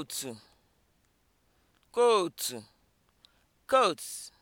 kootu kootu kootu.